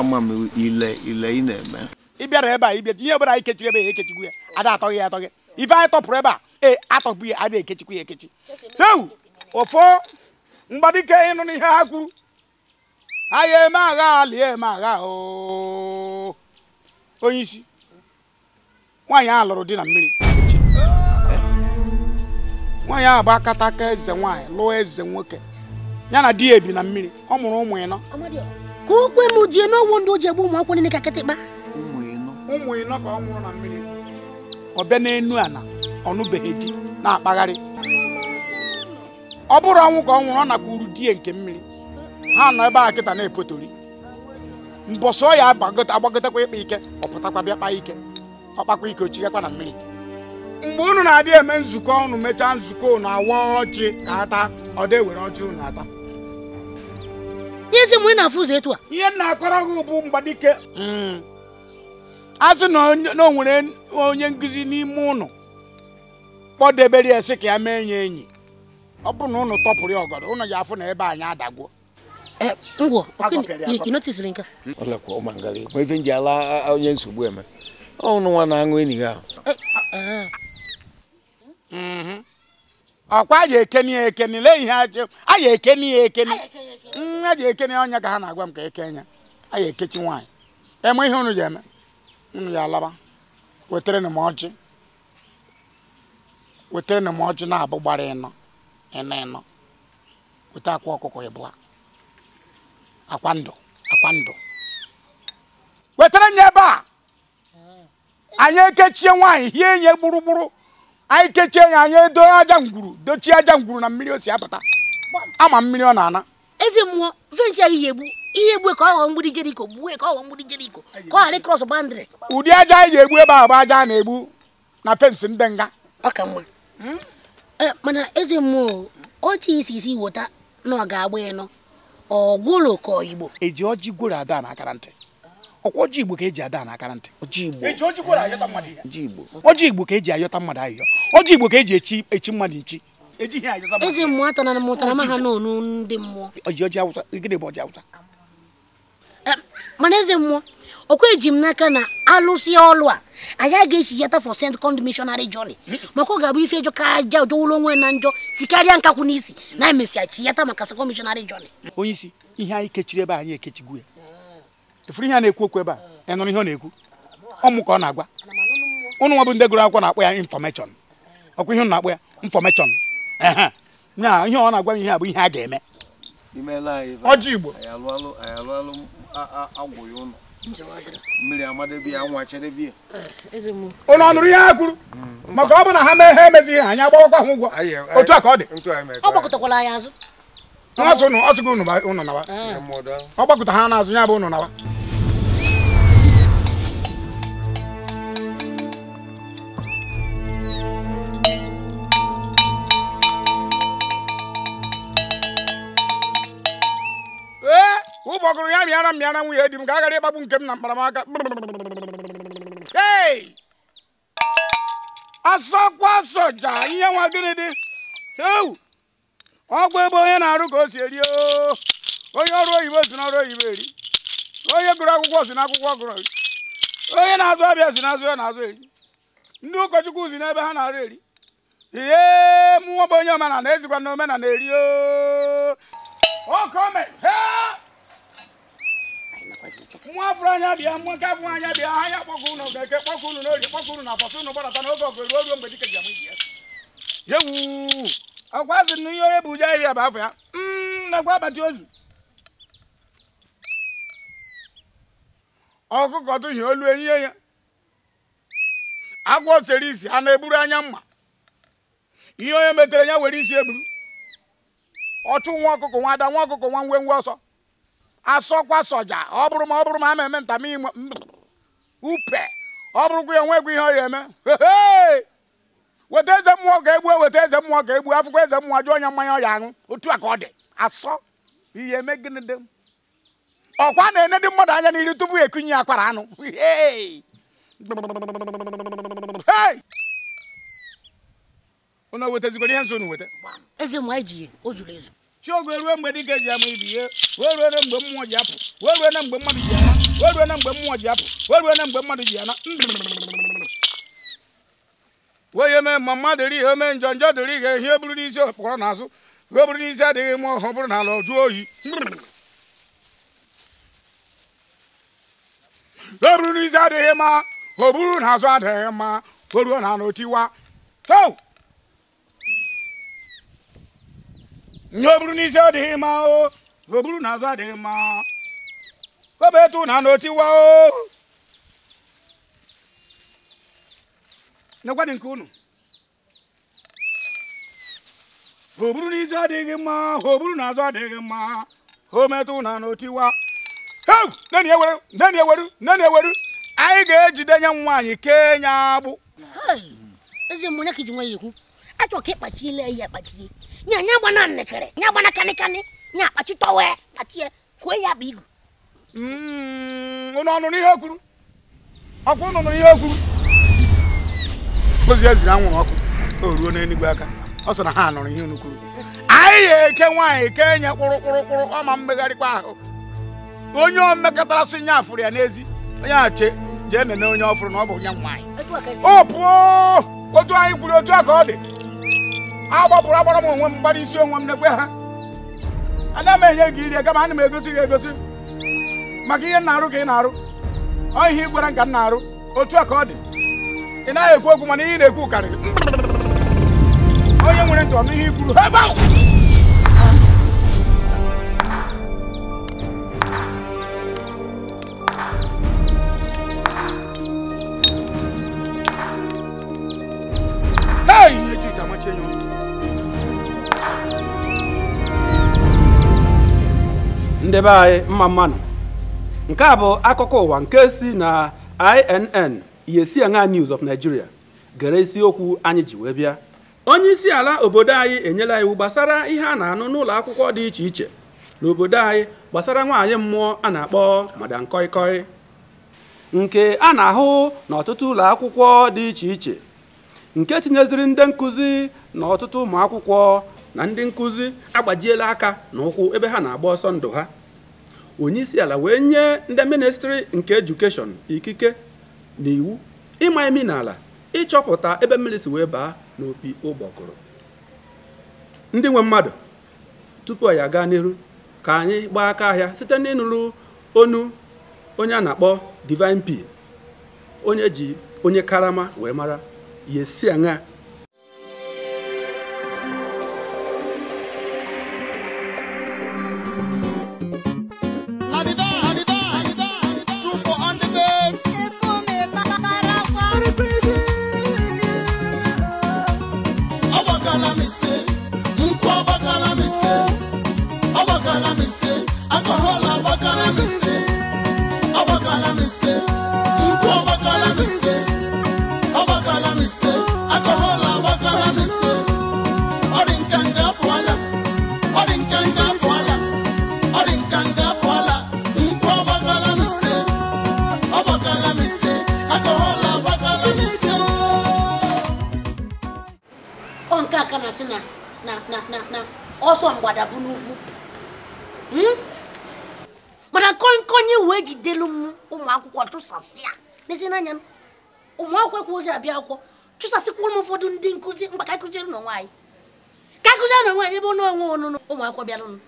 ama m ile ile ị na-eme ị bịara ebe a ịbịa ihe ọbụla anyị kechiri ebe a ekechikwu ya ada atọ ya atọghị ife anyị tọpụrụ ebe a ee atọpụ ya ada ekechikwu ya ekechi heu ụfọ mgbadike ịnụ n'ihe ha kwuru aya eme agha lie eme agha onye isi nwaanyị ahụ lụrụ di na mmiri nwaanyị ahụ bụ akataka eze nwaanyị lụọ eze nwoke ya na di ya ebi na mmiri ọ mụrụ ụmụ ịnọ ka ukwe m ji eme ọgwụ ndị o ji egbu ụmụ akwụkwọ niile ka kịtịkpa ụmụ ịnọ ka ọ nwụrụ na mmiri ọ bịa n'enu ọ nụbeghị di na-akpagharị ọ bụrụ ọnwụ ka ọ nwụrụ ọ uru di ya nke mmiri ha nọ ebe a kịta na-epotori mbọsọ ya agbagotekwa ịkpa ike ọ pụtakwa bịa kpa ike ọ kpakwa ike o chighakwa na mmiri mgbe unu na-adị eme nzukọ unu mechaa nzukọ unu awa ọchị ka ata ọ dị were ọchị unu ata izi mgbe ị na-afụ ụzọ etu a ihe m na-akọrọ gị bụ mgbadike hmm. a na o nwere onye nkuzi n'ime ụnụ kpọdebere ya sị ka ya mee enyi enyi ọ bụ na ụnụ tọpụrụ ya ọgọdọ ụnụ ya afụ na ebe anyị adagwo. ngwọ ịnotisiri nke hmm, ọlekwa ụmụngarị ma ife nji ala onye nsogbu eme ọnụ nwa na-aṅụ enyi ya ahụ Mm-hmm. ọkwa a ga-ekeni ya lee ihe a ga-ekeni ya ekeni mm, ka ha na-agwa m eke ya a ga-ekechi nwaanyị eme ihe unu eme unu ya alaba wetere ọjị wetere ọjị na-abụ gbara ịnọ ịnọ ịnọ akwa ọkụkọ akwa ndụ akwa wetara nye ebe a mm. anyị ekechie nwaanyị hie nye gburugburu anyị kechie ya anyị edo aja ngwuru dochie aja ngwuru na mmiri o si apụta ama mmiri ọ na-ana eze mmụọ venchi ihe ga-egbu ihe egbu e ka ọ ghọọ mgbidi jeriko gbuo e ka ọ ghọọ mgbidi jeriko ka ọ ghara ịkrọs bandịrị ụdị aja anyị ga-egbu ebe ahụ bụ aja a na-egbu na fensị ndị nga ọ ka mma eh, mana eze mmụọ ọchị isi isi weta na ọ ga-agba ịnọ ọ gwụrụ ka oyigbo eji ọjị gworo ada na akara ntị ọkwa ọjị igbo ka eji ada n'aka ntị e ọjị igbo ka eji ayọta mmadụ ayọ ọjị igbo ka eji echi echi mmadụ nchi e ezi mana eze mmụọ ọkwa eji m n'aka na alụsị ọlụ a anyị aga echi yata for second missionary jọni hmm. maka ọ ga-abụ ife ejọ ka aja ụjọwụrụ onwe na njọ tikarịa nkakwụ n'isi na emesịa chi yata maka second missionary journey onye isi ihe anyị kechiri ebe anyị ekechigu ya efuru ihe a na-ekwu okwu ebe a ị ihe ọ na-ekwu ọmụ ka ọ na-agwa ụnụ nwa bụ ndị gụrụ akwụkwọ na-akpọ ya infọmeshọn ọkwa ihe na-akpọ ya infọmeshọn na-agwa ihe a bụ ihe a ga-eme ọjị igbo ụnụ ọ ihe ha kwuru hmm. maka ọ bụ na ha mee ha emezighị anyị ka ọ dị nwaazụ ụnụ ọ sị gị ụnụ nawa ah. ọ gbakọta ha n'azụ ya bụ ụnụ nawa ee eh, ụbọ ọgụrụ ya mịara mịara nwunye di m ka aghara ịkpagbu nke m na mkparamaka asọkwa soja ihe nwa gịnị dị ewu ọgwụ ebe onye na-arụ ka o si eri onye ọrụ oyibo si n'ọrụ oyibo eri onye gụrụ akwụkwọ si n'akwụkwọ gụrụ eri onye na-azụ abịa si n'azụ ya na-azụ eri ndị ụkọchukwu si n'ebe ha na-arụ eri ihe mụnwa bụ onye omenala ezikwa na omenala eri okome nwa afụrụ anya bịa nwa nke afụrụ anya bịa ha ya kpọkọ unu ga-eke kpọkọ unu n'orie kpọkọ unu na afọsụ unu gbadata n'oge ọgụ ruo ruo mgbe dike ji amụ ya ọkwa sị na ihe onye bụ uju ahịhịa bụ afọ ya mm, nakwa akpati ozu ọkụkọ tụhie olu enyihe ya agwọ sere isi a na-eburu anya mma ihe onye metere ya were isi eburu ọchụ nwa ọkụkọ nwa ada nwa ọkụkọ nwa ngwe ngwe ọsọ asọkwa soja ọ bụrụ ma ọ bụrụ ma a ma-eme ntama upe ọ bụrụkwa ya onwekwa ihe ọ ya eme weta eze mmụọ ka egbuo weta eze mmụọ ka egbuo akwụkwọ eze mmụọ jụọ onye mmanya ọ ya aṅụ otu a ka ọ dị asọ ihe eme gịnị dị ọkwa na-enye ndị mmadụ anya n'iru tupu ekunye akwara anụ unu wetazigoro ihe nso unu weta eze mmụọ eji o zuru ezu chiogo eruo mgbe dịka eji ama ibi ihe wee ruo na mgbe mmụọ ji apụ wee ruo na mgbe mmadụ ji ana wee ruo na mgbe mmụọ ji apụ wee ruo na mgbe mmadụ ji ana wee eme ma mmadụ eri ihe ome njọ njọ dịrị ihe ihe buru n'isi okpọrọ n'azụ ihe buru n'isi adịghị mma ọhụrụ bụrụ n'ala ọjụ oyi ihe buru n'isi adịghị mma o buru n'azụ adịghị mma o ruo na anụ tiwa ihe o buru n'isi adịghị mma o o n'azụ adịghị mma o bụ etu na anụ tiwa nyekwanụ nke unu ha oburu n'isi adịghị mma ha oburu n'azụ adịghị mma ha metụ na n'otiwa nne na-eweru nne na-eweru nne na-eweru anyị ga-ejide nye nwaanyị kee nye agbụ ezi mmụnye ka iji nwe ya ekwu achọ ka ịkpachile ihe akpachie nya nya gbana nnekere nya gbana kanịkanị nya akpachi tọwe kpachie kwuo ya bụ igu mm, unu ọnụ n'ihe kwuru ọkwa unu n'ihe ihe ozi ziri e anwụrụ ọkụ o ruo n'enugwu aka ọ sọ na ha nụrụ ihe unu kwuru anyị ga-eke nwaanyị kee enye kpụrụ kpụrụ kpụrụ ma mmegharịkwa ahụ onye omekọtara sị nya afụrụ ya n'ezi onye a che jee nene onye ọfụrụ na ọ bụ nya nwaanyị e o pụọ otu anyị kwuru otu a ka ọ dị agbapụrụ agbara m onwe m gbara isi onwe m n'ekwe ha ana m enye gị iri kama ana m egosi gị egosi maka ihe nna na-arụ ka ị na-arụ ọ ihe ị gwara m ka m na-arụ otu a ka ọ dị ị naghị ekwu okwu mana ihe na-ekwu karịrị onye nwere ntị ọnụ ihe ikwuru ebe ahụ Hey, ihe Chika amachi anyị mma mmanụ nke a bụ akụkọ ụwa nke si na inn yesi news of Nigeria gere isiokwu anyị ji wee bịa onye isi ala obodo anyị enyela iwu gbasara ihe a na-anụ n'ụlọ akwụkwọ dị iche iche n'obodo anyị gbasara nwaanyị mmụọ a na-akpọ madam koikoi nke a na-ahụ n'ọtụtụ ụlọ akwụkwọ dị iche iche nke tinyeziri ndị nkụzi na ọtụtụ ụmụ akwụkwọ na ndị nkụzi agbajiela aka n'ụkwụ ebe ha na-agba ọsọ ndụ ha Onye isi ala wee nye ndị ministri nke edukeshọn ikike n'iwu ịma emi n'ala ịchọpụta ebe mmiri si wee baa n'opi ụgbọkụrụ ndị nwe mmadụ tupu ya aga n'iru ka anyị gbaa aka ahịa site n'ịnụrụ onu onye a na-akpọ divine p onye ji onye karama wee mara yesi a aṅa abịa akwụkwọ chụsasịkwurụ m ụfọdụ ndị nkụzi mgba ka akụziere na onwe ka akụziere na anyị ebe ọ onwe ọnụnụ ụmụ bịarụnụ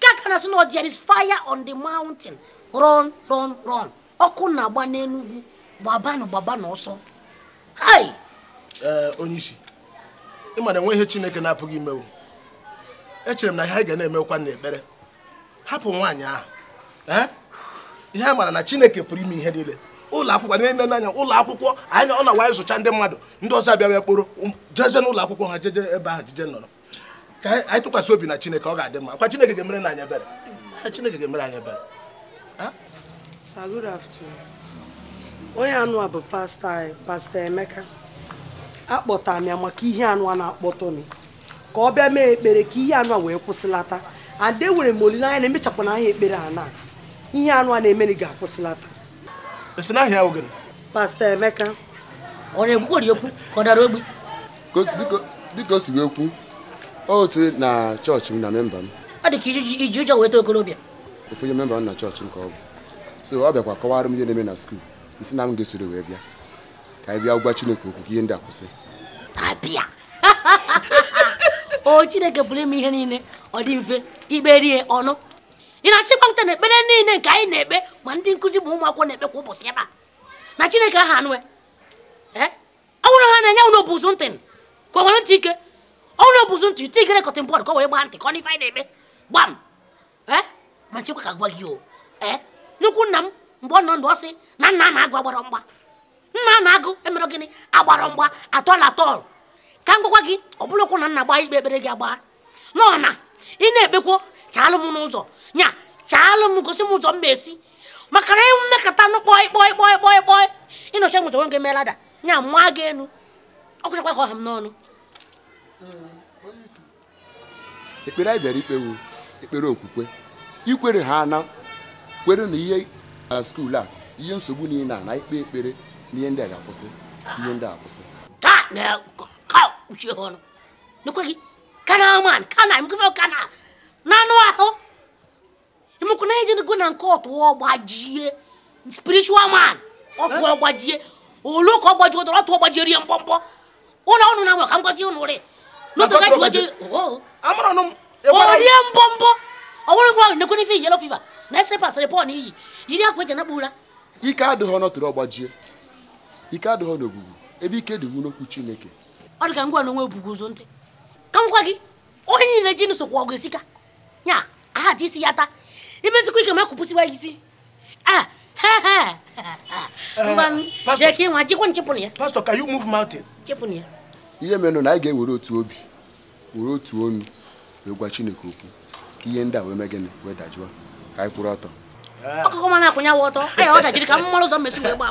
ka aka na-asị na is fire on the mountain run run run ọkụ na-agba n'enugwu gbabanụ gbabanụ ọsọ eh, onye isi ị enwe ihe chineke na-apụghị imewu echere m na ihe anyị ga na-emekwa hapụ nwaanyị ahụ eh? ihe a mara na chineke pụrụ ime ihe niile ụlọ akwụkwọ na-eme n'anya ụlọ akwụkwọ anya ọ na-awa ịzụcha ndị mmadụ ndị ọzọ abịa bịa kporo um, jeje n'ụlọ akwụkwọ ha jeje ebe ahụ jeje nọrọ ka anyị tụkwasị obi na chineke ọ ga-adị mma kwa chineke ga-emere na anyị ebere chineke ga-emere anyị ebere onye anụ a bụ pasta pasta emeka akpọtara m ya maka ihe anụ a na-akpọtọ m ka ọ bịa mee ekpere ka ihe anụ a wee kwụsịlata ade nwere m olileanya na emechapụna ahịa ekpere a na ihe anụ a na-emeri ga-akwụsịlata esi n'ahịa ahụ pasta Emeka ọ na-ekwukwori okwu ka ọ dara ogbi dịka o si wee kwu otu na chọọchị m na memba m ọ dị ka iji ụjọ weta okorobịa ofu onye memba m na chọọchị nke ka ọ bụ so ọ bịakwa kọwara m ihe na-eme na skuul nsi na m ga-esoro wee bịa ka anyị bịa gwa Chineke okwu ihe ndị a kwụsị abịa (laughs) o Chineke pụrụ ime ihe niile ọ dị mfe ikperie ọnụ ị na-achịkwa nta na ekpere niile nke anyị na-ekpe ma ndị nkụzi ma ụmụakwụkwọ na-ekpe kwa ụbọchị ebe a na chineke aha anụ ọ bụrụ ha na-enye ụlọ bụzụ ntị ka o ntị ike ụlọ bụzụ ntị ite ikere kọtịn bọọdụ ka o were ntị ka ọ na-ekpe gbam ma nchekwa ka gwa gị o nnukwu nna m mgbe ọ na nna na-agụ agbara mgba nna na-agụ emere gịnị agbara mgba atọl atọl ka m gwakwa gị ọ na nna ikpe ekpere gị ị na-ekpekwo chaalụ m n'ụzọ nya chaalụ m gosi m ụzọ m esi maka na mmekọta anụ kpọị kpọị kpọị kpọị kpọị ịnọchi nwụzọ nwoke melada nya mma gị enu ọkwụchakwa ka ọha m n'ọnụ ekpere anyị bịara ikpewu ekpere okwukwe ikwere ha na kwere na ihe skuul a ihe nsogbu niile a na ikpe ekpere na ihe ndị a ga-akwụsị ihe ndị a akwụsị ka na-ekpuchi ọnụ n'ekweghị kana man kana mkefe kana n'anụ ahụ imekwu na ejenigo na nke ọtụ ọgbajie spiritual man ọkụ ọgbajie olu ka ọtụ ọgbajie rie mkpọmkpọ ụlọ ọnụ na ka rie oh, oh. ọwụrụ gwa nekwe n'ife fiva na esere pasịrị pọl n'iyi yiri akwa eji anakpụ ụra ike adịghị ọ dị ka ngwa n'onwe obugwu ụzọ ntị ka m gwa gị onye niile ji nsokwu ọgụ nya ahaji isi ya taa imezikwa ike ma kwụpụsiwa isi ihe menụ na anyị ga-ewere otu obi were otu onu wee gwa chineke okwu ka ihe ndị a wee mee gịnị wee dajụọ ka anyị kwụrụ ọtọ eh. ọkụkọ mana akwụnyawa ọtọ aya ọ dajiri ka m mara ụzọ mmesi wee gba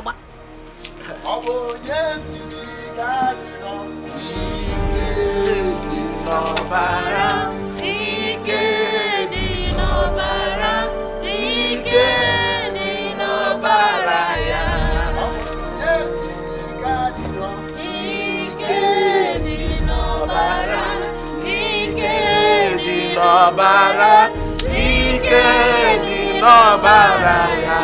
agba ọ ọ̀bàrà ike ni lọ́bàrà yá.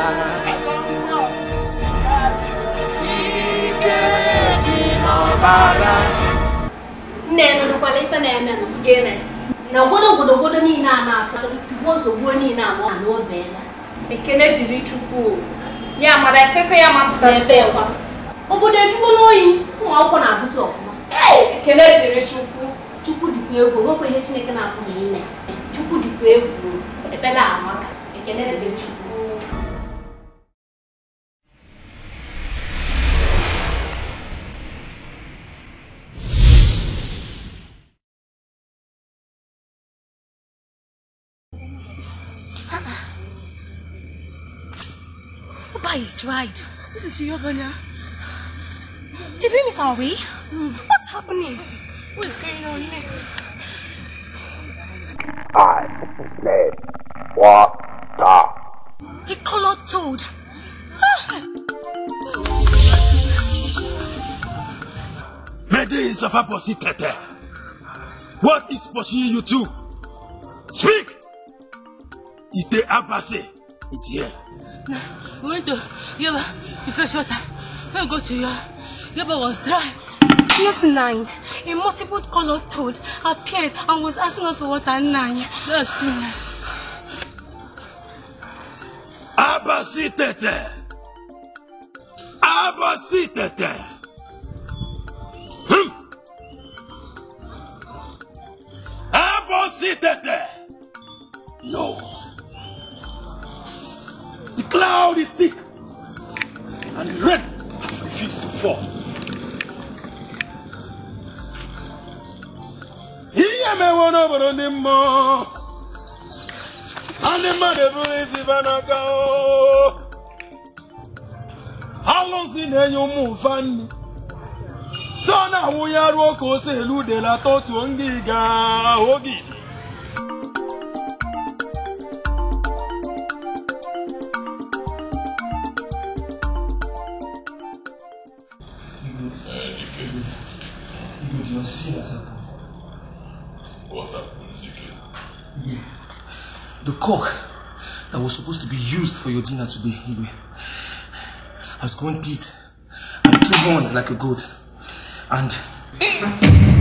Ike ni lọ́bàrà. Nne nụrụkwala ife na-eme nụ gịnị? na obodo obodo obodo niile a na-afọ tigbuo ozugbo niile anọ na o beela ekele dịrị Chukwu ya mara ekeke ya mapụta ebe ọzọ obodo ejugo n'oyi ụmụ akwụkwọ na-abụzi ọfụma ekele dịrị Chukwu Chukwu dịkwa egwu nwekwa ihe Chineke na-apụghị ime chukwu dịkwa egwu ekpere amaka ekele dị chukwu is dried. This is Yobanya. Did we miss our way? Mm. What's happening? What is going on here? I said water. He colored toad. Mede is a Aposi Tete. What is pushing you to? Speak! Ite Abase is here. Now, we went to Yaba to fetch water. We go to Yaba. Yaba was dry. Yes, nine. a multiple colored toad appeared and was asking us for water Now. That's too nine. Abasitete! Abasitete! Hmm. Abasitete! No. The cloud is thick and the rain has refused to fall. ihe emewo n'obodo ndị mmụọ ndị mmadụ eburu isi n'aka alụsị na-enye ụmụ mfa nri so na awụnye ruo ka ose elu udelata otuo ndị ga oge Igwe cock that was supposed to be used for your dinner today, Ibe, has gone eat and two horns like a goat. And...